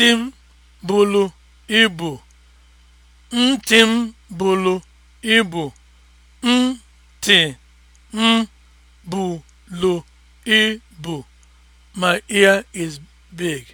ntị m buru ibu ntị m iz ibu big